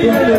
Yeah.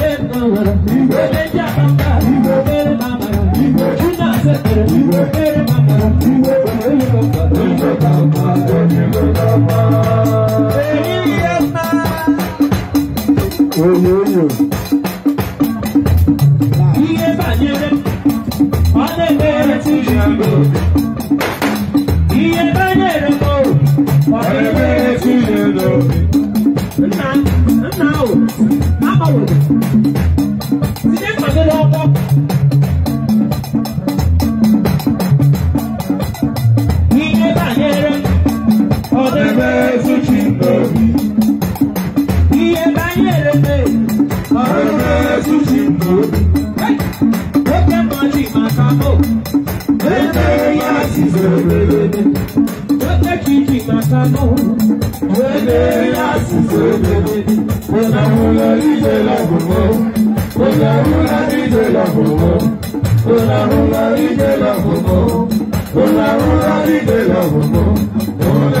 Now, now, now, now, now, now, now, now, now, now, now, ya sizo bebe Ote chichi matano Bebe ya sizo bebe Ona hula ije la gomo Ona hula ije la gomo Ona hula ije la gomo Ona hula ije la gomo Ona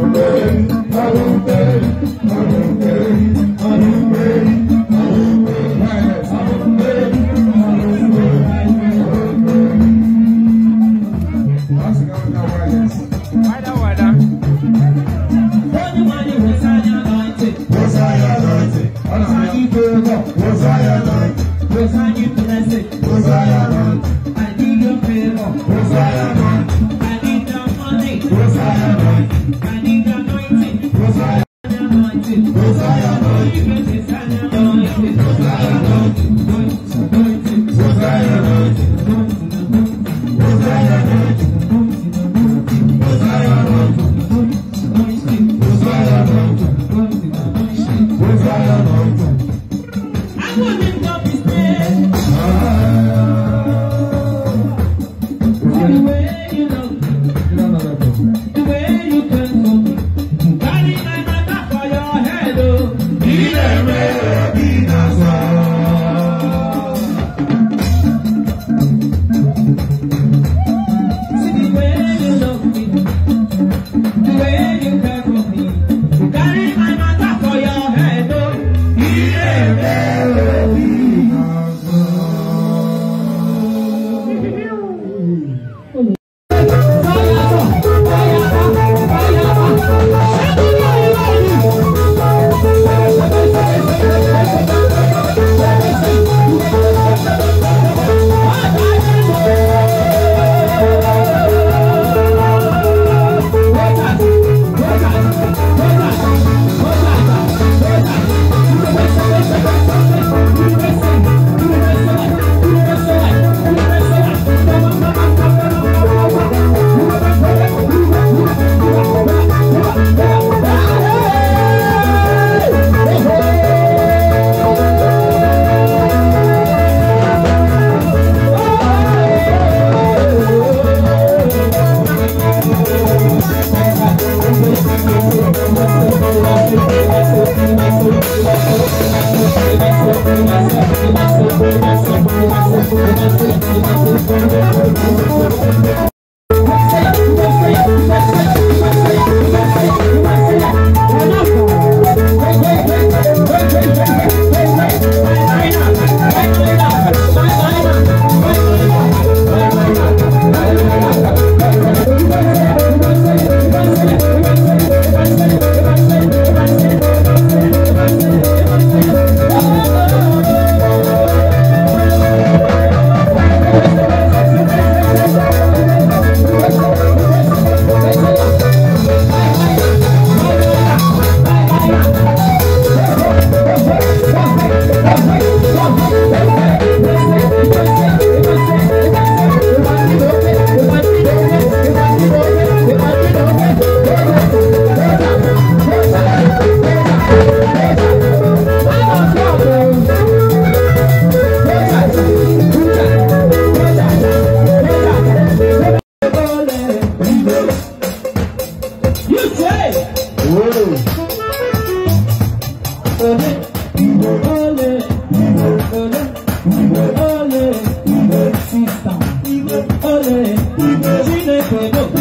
I'm gonna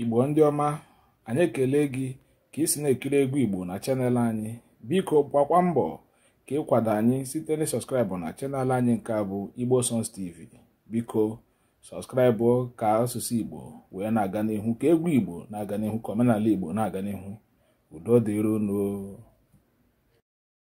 igbo ndị ọma anyị ekele gị ka isi na-ekiri egwu igbo na chanel anyị biko gbakwa mbọ ka ịkwado anyị site na sọskraịbụ na chanel anyị nke bụ igbo songs tv biko sọskraịbụ ka asụsụ igbo wee na-aga n'ihu ka egwu igbo na-aga n'ihu ka omenala igbo na-aga n'ihu udo